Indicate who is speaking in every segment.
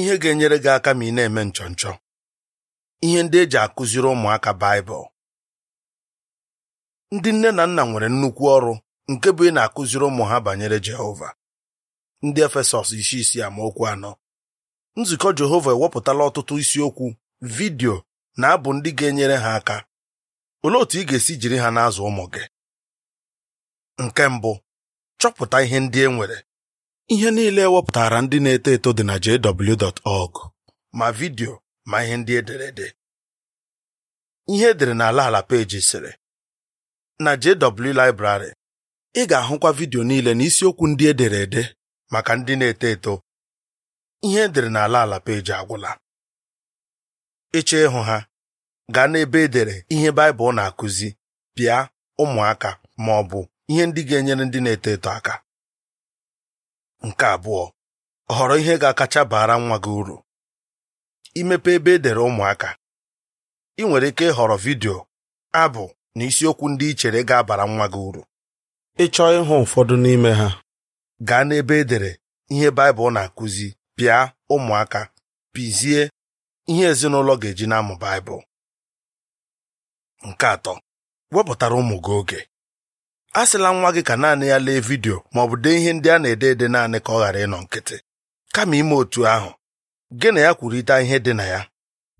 Speaker 1: ihe ga-enyere gị aka ma ị na-eme nchọnchọ ihe ndị eji akụziri ụmụaka Baịbụl ndị nne na nna nwere nnukwu ọrụ nke bụ ị na-akụziri ụmụ ha banyere Jehova ndị Efesọs isi isi amaokwu anọ nzukọ Jehova ewepụtala ọtụtụ isiokwu vidiyo na abụ ndị ga-enyere ha aka olee otu ị ga-esi jiri ha n'azụ ụmụ gị nke mbụ chọpụta ihe ndị e nwere Ihe niile ewepụtara ndị na-eto eto dị na jw.org ma vidio ma ihe ndị ederede. Ihe edere n'ala ala peji sịrị na JW Library ị ga-ahụkwa vidio niile na isiokwu ndị ederede maka ndị na-eto eto. Ihe edere n'ala ala peji agwụla. Ịchọ ịhụ ha gaa n'ebe edere ihe Baịbụl na-akụzi bịa ụmụaka ma ọ bụ ihe ndị ga-enyere ndị na-eto eto aka nke abụọ họrọ ihe ga-akacha bara nwa gị uru imepe ebe edere ụmụaka ị nwere ike ịhọrọ vidio abụ na isiokwu ndị ị chere ga-abara nwa gị uru ị chọọ ịhụ ụfọdụ n'ime ha gaa n'ebe edere ihe Baịbụl na-akụzi pịa ụmụaka pizie ihe ezinụlọ ga-eji na-amụ Baịbụl nke atọ wepụtara ụmụ gị oge asịla nwa gị ka naanị ya lee vidio ma ọ bụ dee ihe ndị a na-ede ede naanị ka ọ ghara ịnọ nkịtị kama ime otu ahụ gị na ya kwurịta ihe dị na ya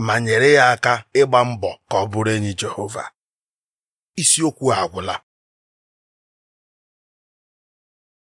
Speaker 1: ma nyere ya aka ịgba mbọ ka ọ bụrụ enyi Jehova isiokwu agwụla